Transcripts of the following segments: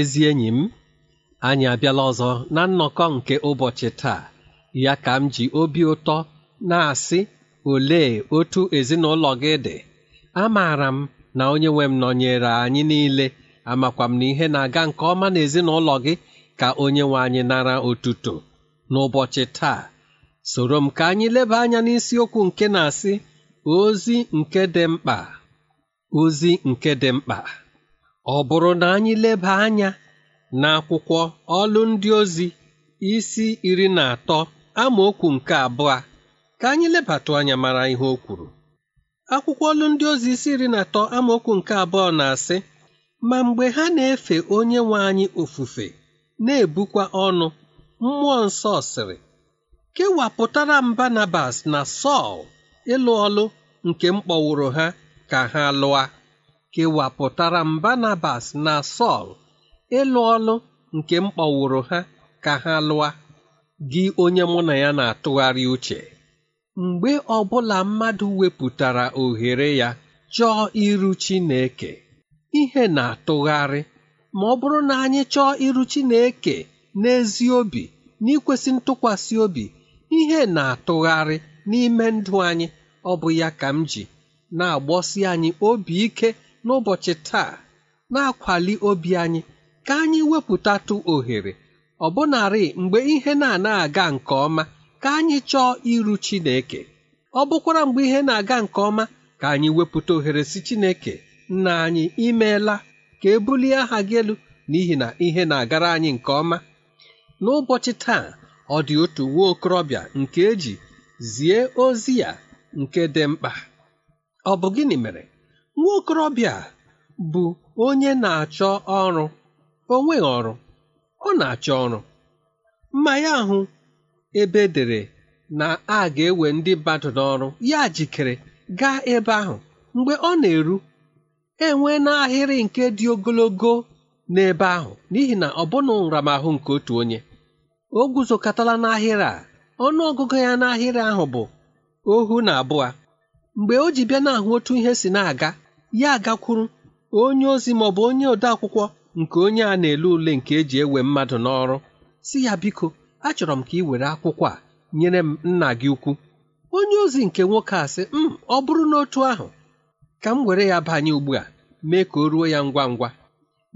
ezi enyi m anyị abịala ọzọ na nnọkọ nke ụbọchị taa ya ka m ji obi ụtọ na-asị ole otu ezinụlọ gị dị amaara m na onye nwe m nọnyere anyị niile amakwa m na ihe na-aga nke ọma na ezinụlọ gị ka onye nwe anyị nara otuto n'ụbọchị taa soro m ka anyị leba anya n'isiokwu nke na-asị ozi nke dị mkpa ozi nke dị mkpa Ọ bụrụ na anyị leba anya n'akwụkwọ ọlụ ndị ozi isi iri na atọ amaokwu nke abụọ ka anyị lebatụ anya mara ihe o kwuru akwụkwọ ọlụ ndị ozi isi iri na atọ amaokwu nke abụọ na-asị ma mgbe ha na-efe onye nwe anyị ofufe na-ebukwa ọnụ mmụọ nsọ sịrị kewapụtara m Barnabas na Sọl ịlụ ọlụ nke mkpọwụrụ ha ka ha lụa kewapụtara Banabas na Sọl ịlụ ọlụ nke m kpọwụrụ ha ka ha lụa gị onye mụ na ya na-atụgharị uche mgbe ọbụla mmadụ wepụtara ohere ya chọọ iru Chineke ihe na-atụgharị ma ọ bụrụ na anyị chọọ iru Chineke n'ezi obi n'ikwesị ntụkwasị obi ihe na-atụgharị n'ime ndụ anyị ọ bụ ya ka m ji na-agbọsi anyị obi ike n'ụbọchị taa na-akwali obi anyị ka anyị wepụtatụ ohere ọbụnarị mgbe ihe na-ana aga nke ọma ka anyị chọọ iru Chineke ọ bụkwara mgbe ihe na-aga nke ọma ka anyị wepụta ohere si Chineke nna anyị imeela ka ebulie aha gị elu n'ihi na ihe na-agara anyị nke ọma n'ụbọchị taa ọ dị otu nwa okorobịa nke eji zie ozi ya nke dị mkpa ọ bụ gịnị mere nwa okorobịa a bụ onye na-achọ ọrụ onwe ọrụ ọ na-achọ ọrụ mma ya ahụ ebe dere na a ga-ewe ndị mmadụ n'ọrụ ya jikere gaa ebe ahụ mgbe ọ na-eru enwe n'ahịrị nke dị ogologo n'ebe ahụ n'ihi na ọ bụna nramahụ nke otu onye o guzokọtala n'ahịrị a ọnụ ọgụgụ ya n'ahịrị ahụ bụ ohu na abụọ mgbe o ji bịa na-ahụ otu ihe si na-aga ya gakwuru onye ozi ma ọ bụ onye odeakwụkwọ nke onye a na-ele ule nke eji ewe mmadụ n'ọrụ si ya biko achọrọ m ka ị were akwụkwọ a nyere m nna gị ukwu onye ozi nke nwoke a sị m mm, ọ bụrụ n'otu ahụ ka m were ya banye ugbu a mee ka o ruo ya ngwa ngwa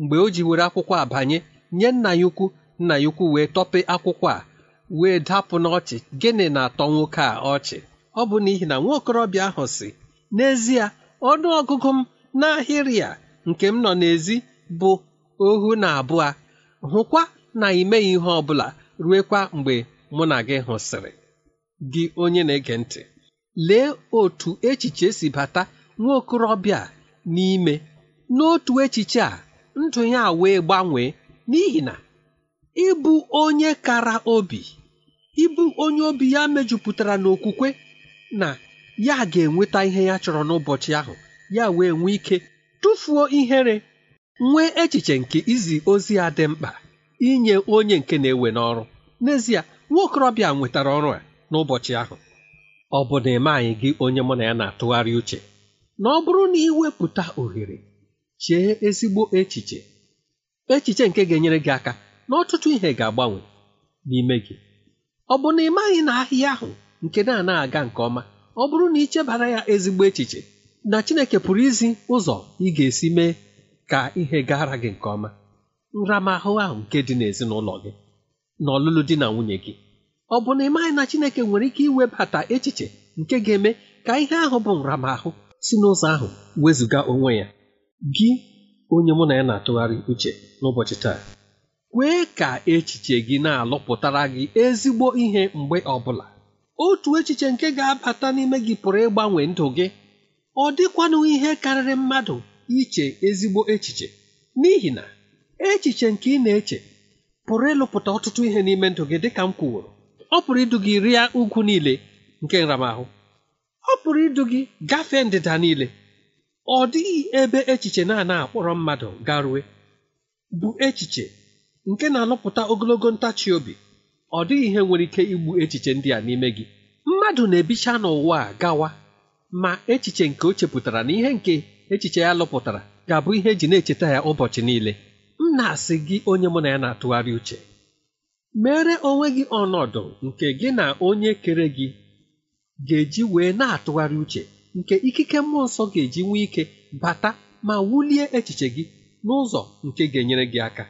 mgbe o ji were akwụkwọ a banye nye nna ya ukwu nna ya ukwu wee tọpe akwụkwọ a wee dapụ n'ọchị gịnị na-atọ nwoke a ọchị ọ bụ n'ihi na nwaokorobịa ahụ si n'ezie ọnụ ọgụgụ m n'ahịrị a nke m nọ n'ezi bụ ohu na abụọ hụkwa na ị meghị ihe ọ bụla ruekwa mgbe mụ na gị hụsịrị gị onye na-ege ntị lee otu echiche si bata nwa okorobịa n'ime n'otu echiche a ndụ ya wee gbanwee n'ihi na ịbụ onye kara obi ịbụ onye obi ya mejupụtara n'okwukwe na ya ga-enweta ihe ya chọrọ n'ụbọchị ahụ ya wee nwee ike tụfuo ihere nwee echiche nke izi ozi a dị mkpa inye onye nke na-ewe n'ọrụ n'ezie nwaokorobịa nwetara ọrụ a n'ụbọchị ahụ ọ bụ na eme anyị gị onye mụ na ya na-atụgharị uche na ọ bụrụ na iwepụta ohere chee ezigbo echiche echiche nke ga-enyere gị aka na ọtụtụ ihe ga-agbanwe n'ime gị ọ bụ na ị maghị na ahịa ahụ nke na na-aga nke ọma ọ bụrụ na ị chebara ya ezigbo echiche na Chineke pụrụ izi ụzọ ị ga-esi mee ka ihe gara gị nke ọma nramahụ ahụ nke dị n'ezinụlọ gị na ọlụlụ di na nwunye gị ọ bụ na ị maghị na Chineke nwere ike iwebata echiche nke ga-eme ka ihe ahụ bụ nramahụ si n'ụzọ ahụ wezụga onwe ya gị onye mụ na ya na-atụgharị uche n'ụbọchị taa kwee ka echiche gị na-alụpụtara gị ezigbo ihe mgbe ọ bụla. otu echiche nke ga-abata n'ime gị pụrụ ịgbanwe ndụ gị ọ dịkwanụ ihe karịrị mmadụ iche ezigbo echiche n'ihi na echiche nke ị na-eche pụrụ ịlụpụta ọtụtụ ihe n'ime ndụ gị dịka m kwuworo ọ pụrụ idu gị rịa ugwu niile nke nramahụ ọ pụrụ idu gị gafee ndịda niile ọ dịghị ebe echiche na-ana akpọrọ mmadụ garue bụ echiche nke na-alụpụta ogologo ntachi obi ọ dịghị ihe nwere ike igbu echiche ndị a n'ime gị mmadụ na-ebicha n'ụwa a gawa ma echiche nke o chepụtara na ihe nke echiche ya lụpụtara ga-abụ ihe eji na-echeta ya ụbọchị niile m na-asị gị onye mụ na ya na-atụgharị uche mere onwe gị ọnọdụ nke gị na onye kere gị ga-eji wee na-atụgharị uche nke ikike mmụọ nsọ ga-eji nwee ike bata ma wulie echiche gị n'ụzọ nke ga-enyere gị aka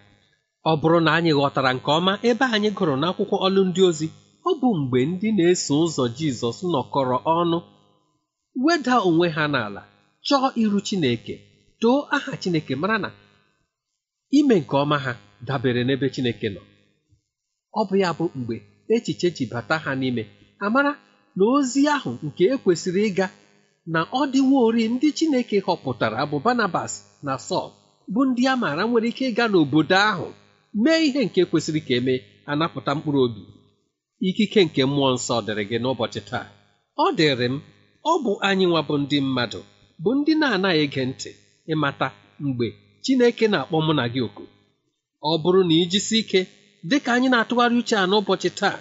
ọ bụrụ na anyị ghọtara nke ọma ebe anyị gụrụ n'akwụkwọ ọlụ ndị ozi ọ bụ mgbe ndị na-eso ụzọ Jizọs nọkọrọ ọnụ weda onwe ha n'ala chọọ iru Chineke too aha Chineke mara na ime nke ọma ha dabere n'ebe Chineke nọ ọ bụ ya bụ mgbe echiche ji bata ha n'ime amara na ozi ahụ nke ekwesịrị ịga na ọ ori ndị Chineke họpụtara bụ Barnabas na Sọl bụ ndị a maara nwere ike ịga n'obodo ahụ mee ihe nke kwesịrị ka emee anapụta mkpụrụ obi ikike nke mmụọ nsọ dịrị gị n'ụbọchị taa ọ dịrị m ọ bụ anyị nwa bụ ndị mmadụ bụ ndị na-anaghị ege ntị ịmata mgbe Chineke na-akpọ mụ na gị oku ọ bụrụ na ijisi ike dị ka anyị na-atụgharị uche a n'ụbọchị taa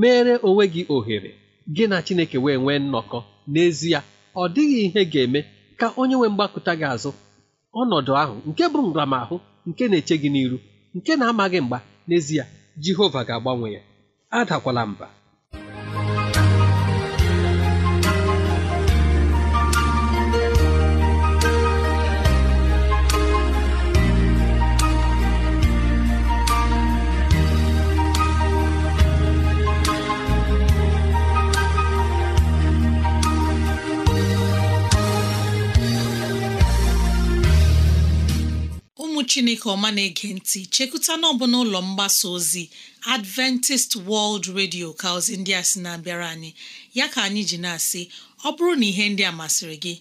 mere onwe gị ohere gị na Chineke wee nwee nnọkọ n'ezie ọ dịghị ihe ga-eme ka onye nwee mgbakụta gị azụ ọnọdụ ahụ nke bụ nramahụ nke na-eche gị n'iru nke na-amaghị mgba n'ezie jehova ga-agbanwe ya adakwala mba chineke ọma na-ege ntị chekụta n'ọbụ n'ụlọ mgbasa ozi adventist world radio ka ozi ndị a sị na-abịara anyị ya ka anyị ji na-asị ọ bụrụ na ihe ndị a masịrị gị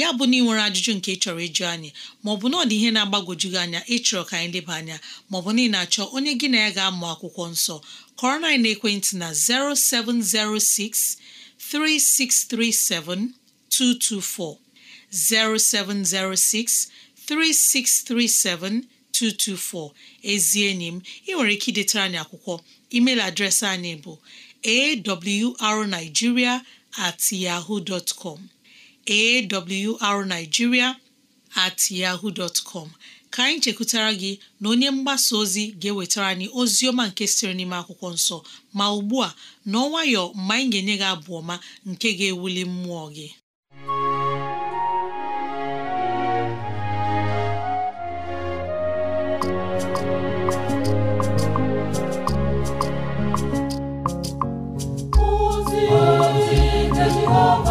ya bụ na ị nwere ajụjụ nke ị chọrọ ịjụ anyị maọbụ na ọ dị ihe na-agbagwoju gị anya ịchọrọ ka anyị leba anya maọbụ na ị na-achọ onye gị na ya ga-amụ akwụkwọ nsọ kọrọ na ekwentị na 0706 3637 224 0706 3637224 ezi enyi ị nwere ike idetara anyị akwụkwọ email adreesị anyị bụ arigiria at at yahoo dot ka anyị chekwutara gị na onye mgbasa ozi ga-ewetara anyị ozi ọma nke siri n'ime akwụkwọ nsọ ma ugbu a n'ọnwayọ mgbe anyị ga-enye gị abụ ọma nke ga-ewuli mmụọ gị Oh.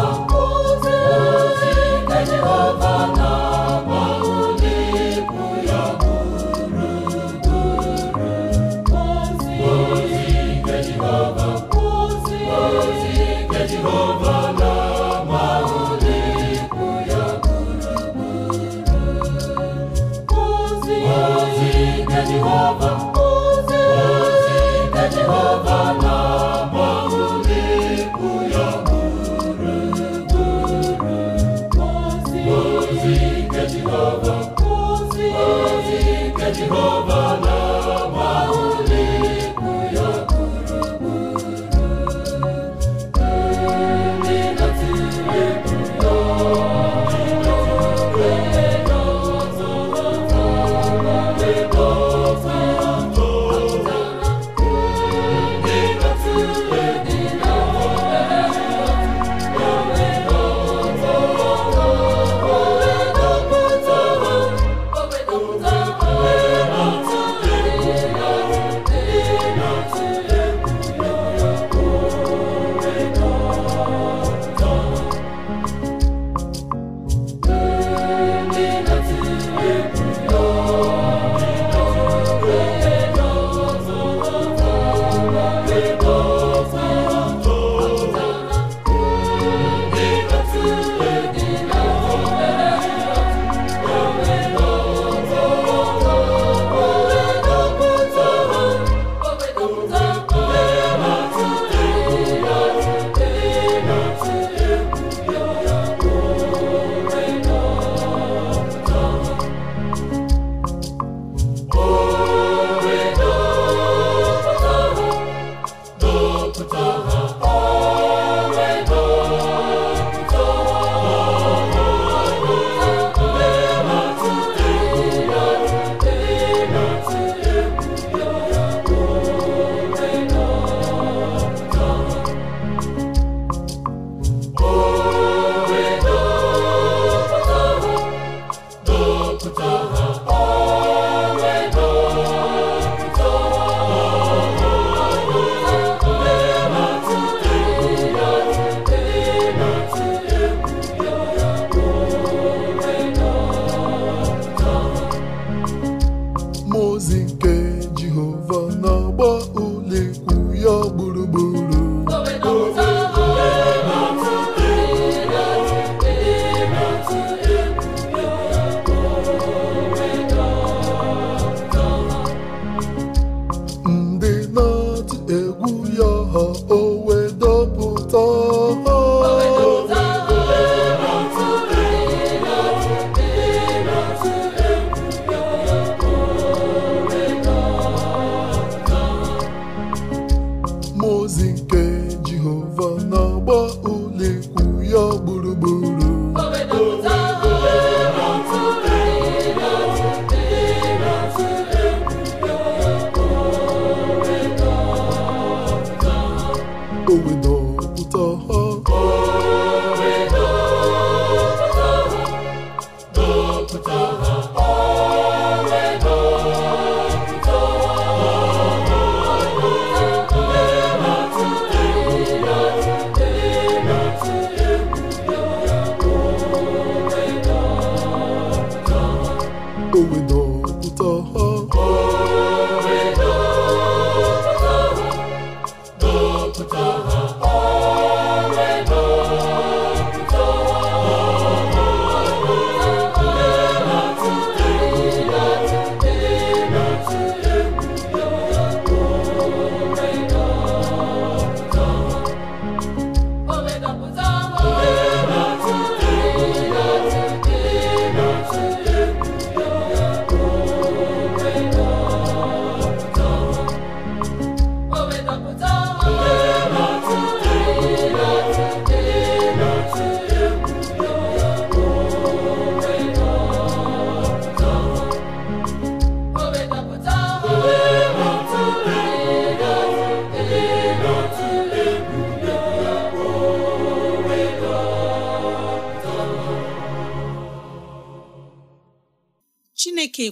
Jupiter.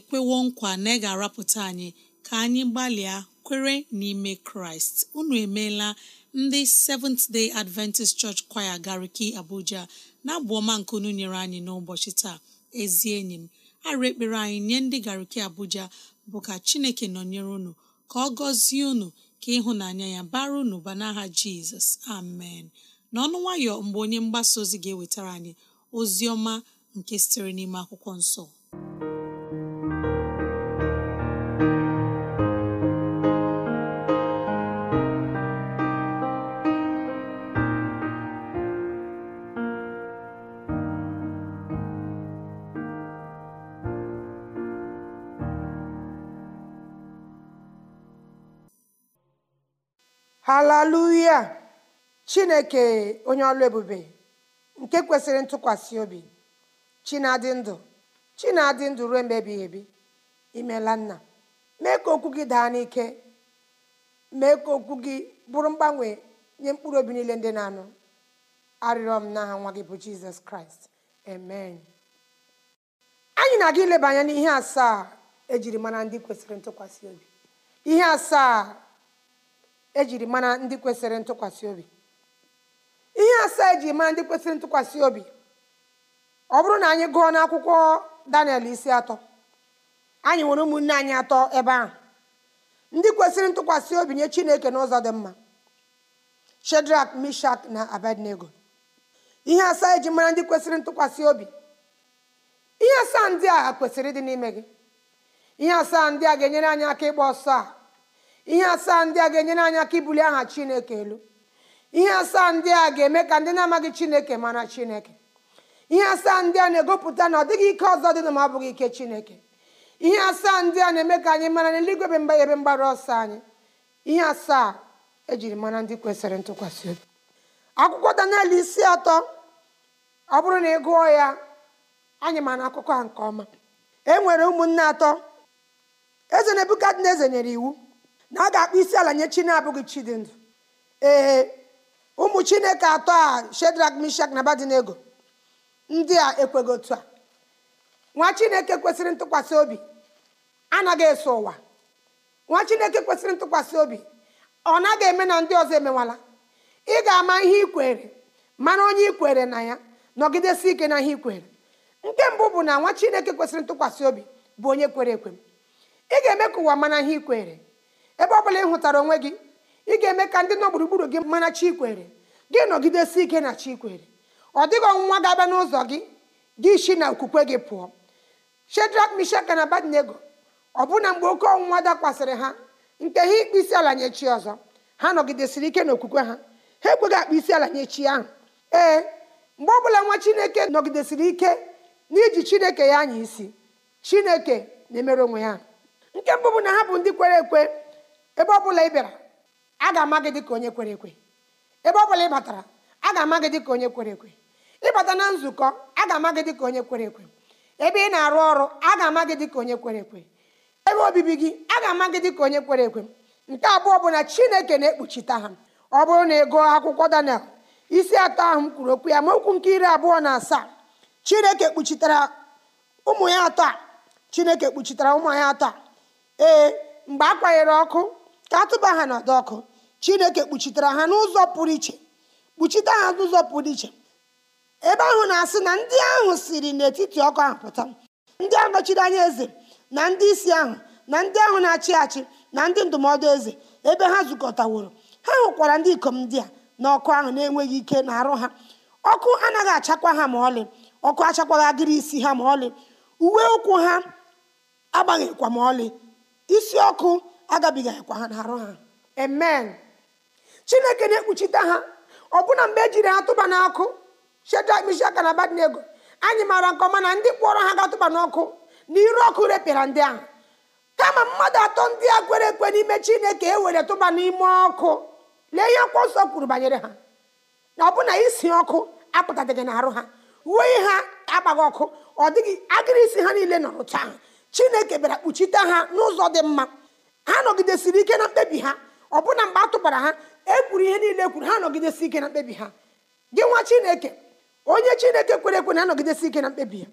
ekwewo nkwa na ị ga-arapụta anyị ka anyị gbalịa kwere n'ime kraịst unu emeela ndị seventh day adventist church choir gariki abuja na-abụ ọma nke unu nyere anyị n'ụbọchị taa ezi enyi m arụ ekpere anyị nye ndị gariki abuja bụ ka chineke nọnyere unu ka ọ gọzie unu ka ịhụnanya ya bara unu ba n'aha jizọs amen n'ọnụ nwayọ mgbe onye mgbasa ozi ga-ewetara anyị ozi ọma nke sitere n'ime akwụkwọ nsọ haleluya chineke onye ọlụ ebube nke kwesịrị ntụkwasị obi chinadị ndụ chinadị ndụ ruo mgbe ebighị ebi imela nna mee ka okwu gị daa n'ike mee ka okwu gị bụrụ mgbanwe nye mkpụrụ obi niile ndị na-anụ arịrịọ m n'aha nwa gị bụ jizọs kraịst amen anyị na-aga ileba anya n'ihe asaa ejiri mara ndị kwesịrị ntụkwasị obi ihe asaa ejiri mara ndị kwesịrị ntụkwasị obi ihe asaa eji mara ndị kwesịrị ntụkwasị obi ọ bụrụ na anyị gụọ n'akwụkwọ daniel isi atọ anyị nwere ụmụnne anyị atọ ebe ahụ ndị kwesịrị ntụkwasị obi nye chineke n'ụzọ dị mma shedrak mishak na abednego ihe asaa eji mara ndị kwesịrị ntụkwasị obi ihe asaa ndị a kwesịrị ịdị n'ime gị ihe asaa ndị a ga-enyere anyị aka ịgba ọsọ a ihe asaa ndị a ga-enyere anyị aka ibuli aha chineke elu ihe asaa ndị a ga-eme ka ndị na-amaghị chineke mara chineke ihe asaa ndị a na-egopụta na ọ dịghị ike ọzọ dị na ma ọ bụghị ike chineke ihe asaa ndị a na-eme ka anyị mara n'eluigwe be mba ebe mgbara ọsọ anyị ihe asaa ejiri mara ndị kwesịrị ntụkwasị obi akwụkwọ Daniel isi atọ ọ bụrụ na ị gụọ ya anyị ma akụkọ a nke ọma e nwere ụmụnne atọ eze na eze nyere iwu na ọ ga-akpọ isi ala nye chi na-abụghị chi dị ndụ ee ụmụ chineke atọ a shedrak mishak na abadinego ndị a ekweghị otu a nwa chineke kwesịrị ntụkwasị obi anaghị eso ụwa nwa chineke kwesịrị ntụkwasị obi ọ naghị eme na ndị ọzọ emewala ị ga-ama ihe ikwere mana onye ikwere na ya nọgidesi ike na ihe ikwere nke mbụ bụ na nwa chineke kwesịrị ntụkwasị obi bụ onye kwere ekwe ị ga-eme ka ụwa mana ihe ikwere ebe ọ bụla ị hụtara onwe gị ị ga-eme ka ndị nọ gburugburu gị mara chikwere gị nọgidesi ike na chikwere ọ dịghị ọnwụnwa ga-abịa n'ụzọ gị gị isi na okwukwe gị pụọ Shedrak, Mishak na Abednego ọbụna mgbe oke ọnwụnwa dakwasịrị ha nke ha ikpe isi ala nye chi ọzọ ha nọgidesiri ike n'okwukwe ha ha ekweghị akpa isi ala nye chi ahụ ee mgbe ọbụla nwa chineke nọgidesiri ike n'iji chineke ya anya isi chineke na-emere onwe ya nke mbụ bụ na ha bụ ndị kwere ekwe ebe ọ bụla ị bịara a ga-ama gị dịka onye kwere ekwe ebe ọ bụla ị batara a ga-ama gị dịka onye kwere ekwe ịbata na nzukọ a ga-ama gị dịka onye kwere ekwe ebe ị na-arụ ọrụ a ga-ama gị dịka onye kwere ekwe ebe obibi gị a ga-ama gị dịka onye kwere ekwe nke abụọ bụ na chineke na-ekpuchite ha ọ bụrụ na ị gụọ akwụkwọ daniel isi atọ ahụ m kwuru okwu ya ma okwu nke iri abụọ na asaa chineke kpuchitara ụmụ ya atọ chineke kpuchitara ụmụ ya atọ ee mgbe a kwanyere ọkụ ka atụba ha n'ọdọ ọkụ chineke kpuchitere ha n'ụzọ pụrụ iche kpuchite ha n'ụzọ pụrụ iche ebe ahụ na-asị na ndị ahụ siri n'etiti ọkụ ahụ pụta ndị anọchiri anya eze na ndị isi ahụ na ndị ahụ na-achị achị na ndị ndụmọdụ eze ebe ha zukọtaworo ha hụkwara ndị ikom ndị a na ọkụ ahụ na-enweghị ike na arụ ha ọkụ anaghị achakwa ha ma ọlị ọkụ achakwaghị agịrị isi ha ma ọlị uwe ụkwụ ha agbaghịkwa ma ọlị isi ọkụ agabigakwa ha n'arụ ha amen chineke na-ekpuchite ha ọbụna mgbe ejiri ha tụba n'ọkụ shedrach mishak na abednego anyị maara nke ọma na ndị kpọrọ ha gatụba n'ọkụ na iru ọkụ repịara ndị ahụ kama mmadụ atọ ndị a kwere ekwe n'ime chineke e were tụba n'ime ọkụ lee ihe akwụkwọ nsọ kwuru banyere ha na ọbụna isi ọkụ apụtadịghị n'arụ ha uwe ha agbaghị ọkụ ọ dịghị agịrị isi ha niile nọrọ taa chineke bịara kpuchite ha n'ụzọ dị mma ha nọgidesiri ike na mkpebi ha ọbụna mgbe a tụbara ha ekwuru ihe niile ekwuru ha nọgidesi ike na mkpebi ha gị nwa chineke onye chineke kwere ekwe na-anọgidesi ike na mkpebi ya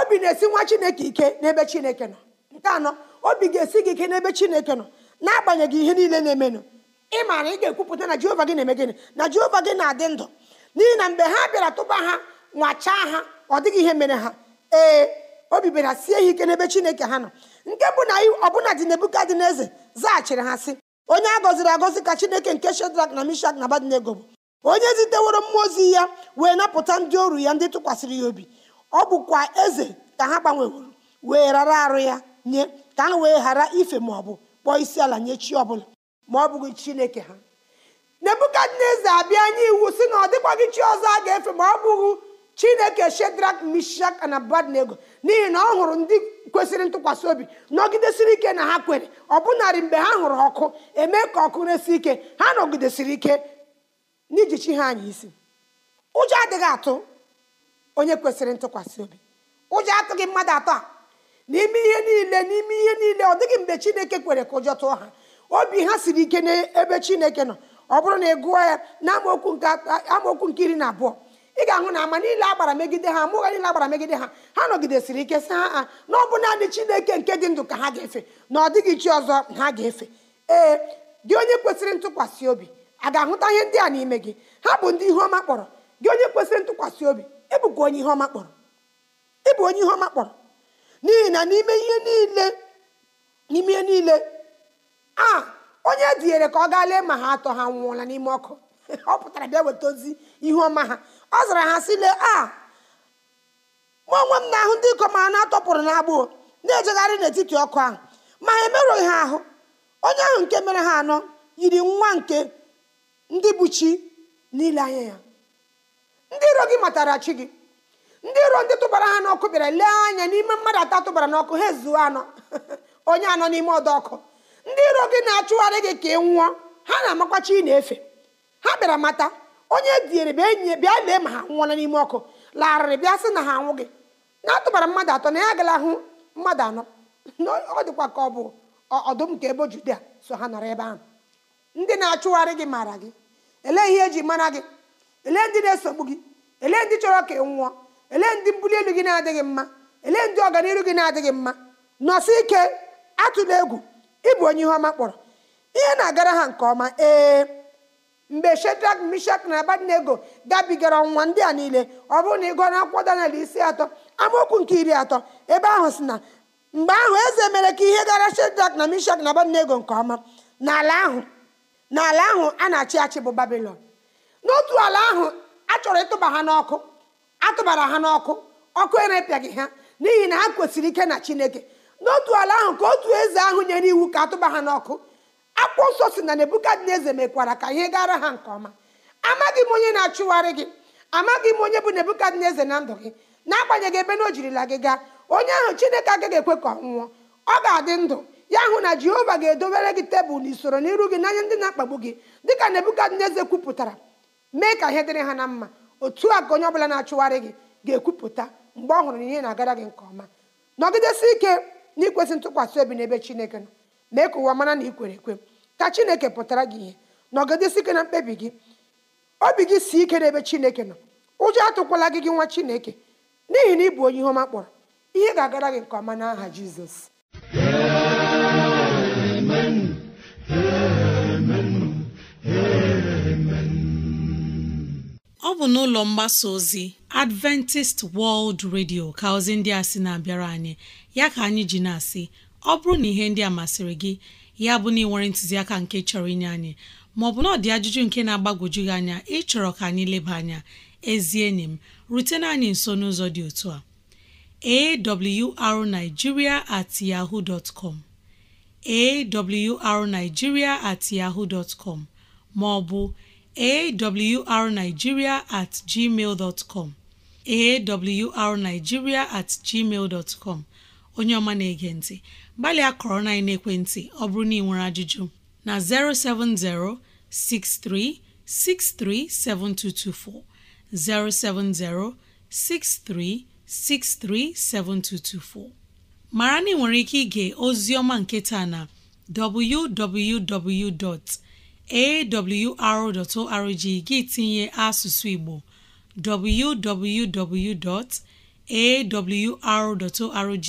obi na-esi nwa chineke ike n'ebe chineke nọ nke anọ obi ga-esi gị ike n'ebe chineke nọ n'agbanyeghị ihe niile na-emenụ ị maara ị ga-ekwupụta na jehova gị na-eme gịnị na jehova gị na-adị ndụ n'ihi na mgbe ha bịara tụba ha nwachaa ha ọ dịghị ihe mere ha ee obi bịara sie ya ike n'ebe chineke ha nọ nke bụ na ọbụna dị nebukadneze zaghachiri ha sị onye a gọziri agọzi ka chineke nke shedrak na mishak na abadnego bụ onye ziteworo mmụọ ozi ya wee napụta ndị oru ya ndị tụkwasịrị ya obi ọ bụkwa eze ka ha gbanweworo wee rara arụ ya nye ka ha wee ghara ife ma ọ bụ kpọọ isi ala nye chi ọbụla ma ọ bụghị chineke ha nebukadneza abịa nye iwu si na ọ dịkwaghị chi ọzọ a ga-efe ma ọ bụghị chineke shedrak mishak na abadnego n'ihi na ọ hụrụ ndị kwesịrị ntụkwasị obi nọgidesiri ike na ha kwere ọbụnarị mgbe ha hụrụ ọkụ eme ka ọkụ resi ike ha nọgidesiri ike n'iji chi ha anyị isi ụjọ adịghị atụ onye kwesịrị ntụkwasị obi ụjọ atụghị mmadụ atọ a n'ime ihe niile n'ime ihe niile ọ dịghị mgbe chineke kwere ka ụjọ tụọ ha obi ha siri ike n'ebe chineke nọ ọ bụrụ na ị gụọ ya na amaokwu nke iri na abụọ ị ga-ahụ na ama niile agbara megide ha mụgha niile agbara megide ha ha nọgidesiri ike si ha a na ọ bụ naanị chineke nke dị ndụ ka ha ga-efe na ọ dịghị chi ọzọ ha ga-efe ee gị onye kwesịrị ntụkwasị obi a ga-ahụta ihe ndị a n'ime gị ha bụ ndị ihe ọma kpọrọ gị onye kwesịrị ntụkwasị obi ịbụkwa onye ihe ọma kpọrọ ịbụ onye ihe ọma kpọrọ n'ihi na n'ime ihe niile n'ime ihe niile a onye e dinyere ka ọ gaa lee ma ha atọ ha nwụọla n'ime ọkụ ọ pụtara bịa weta ozi ihe ọma ha ọ zara ha sile a mụ onwe m na-ahụ ndị ikom a na-atọpụrụ n'agbụ na-ejegharị n'etiti ọkụ ahụ ma ha emerụghị ha ahụ onye ahụ nke mere ha anọ yiri nwa nke ndị bụ chi n'ile anya ya ndị iro gị matara chi gị ndị iro ndị tụbara ha n'ọkụ bịara lee anya n'ime mmadụ atọ tụbara n'ọkụ ha ezuo anọ onye anọ n'ime ọdọ ọkụ ndị iro gị na-achụgharị gị ka ị nwụọ ha na-amakwa chi na-efe ha bịara mata onye diere bịa enyi bịa lee ma ha nwụọla n'ime ọkụ larịrị bịa sị na ha anwụ gị na-atụbara mmadụ atọ na ya agala hụ mmadụ anọ ọ dịkwa ka ọ bụ ọdụm nke ebe judea so ha nọrọ ebe ahụ ndị na-achụgharị gị maara gị elee ihe eji mara gị elee ndị na-esogbu gị ele ndị chọrọ ka nwụọ elee ndị mbuli elu gị na-adịghị mma ele ndị ọganihu gị na-adịghị mma nọsị ike atụla egwu ịbụ onye ihe ọma kpọrọ ihe na-agara ha nke ọma ee mgbe shedrak mishak na abadnego gabigara ọnwụnwa ndị a niile ọ bụrụ na ị gụọ n'akwụkwọ daniel isi atọ amaokwu nke iri atọ ebe ahụ si na mgbe ahụ eze mere ka ihe gara shedrak na mishak na abadnego nke ọma n'ala ahụ n'ala ahụ a na-achị achị bụ babilon n'otu ala ahụ a chọrọ ịtụba ha n'ọkụ atụbara ha n'ọkụ ọkụ erepịaghị ha n'ihi na ha kwesịrị ike na chineke n'otu ala ahụ ka otu eze ahụ nyere iwu ka atụba ha n'ọkụ akwụkwọ nsọ si na nebukadneza mekwara ka ihe gara ha nke ọma amaghị m onye na-achụgharị gị amaghị m onye bụ nebukadneza na ndụ gị n'agbanyeghị ebe na o jirila gị gaa onye ahụ chineke agaghị ekwe ka ọ nwụọ ọ ga-adị ndụ ya hụ na jehova ga-edobere gị tebụl na usoro n'iru gị n'anya ndị na-akpagbu gị dịka nebukadneza kwupụtara mee ka ihe dịrị ha na mma otu a ka onye ọbụla na-achụgharị gị ga-ekwupụta mgbe ọ hụrụ na ihe na-agara gị nke ọma nọgidesi ike n'ikwesị ntụkwasị obi n'ebe chineke nọ mee ka ụwa mara na ị kwere ekwe ka chineke pụtara gị ihe na na mkpebi gị obi gị si ike n'ebe chineke nọ ụjọ atụkwala gị gị nwa chineke n'ihi na ị bụ onye ihe ọma kpọrọ ihe ga-agara gị nke ọma n'aha jizọs ọ bụ n'ụlọ mgbasa ozi Adventist World Radio ka ozi ndị a sị na-abịara anyị ya ka anyị ji na-asị ọ bụrụ na ihe ndị a masịrị gị ya bụ na ị nwere ntụziaka nke chọrọ inye anyị maọbụ na ọ dị ajụjụ nke na-agbagwoju gị anya ịchọrọ ka anyị leba anya ezi enyi m rutena anyị nso n'ụzọ dị otu a awrnigeria at yahoo dot com awrnigeria at yahoo dot com maọbụ awrnigeria at gmail dot com awrnigeria at gmail dot com onye ọma na-ege ntị gbalịa kọrọ na ekwentị ọ bụrụ na ị nwere ajụjụ na 070 6363 7224 070 6363 7224 mara na ị nwere ike ige ozi ọma nketa na www.awr.org gị tinye asụsụ Igbo www.awr.org